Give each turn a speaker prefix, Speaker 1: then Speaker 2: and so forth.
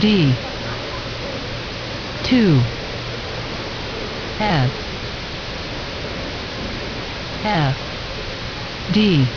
Speaker 1: D two F
Speaker 2: F D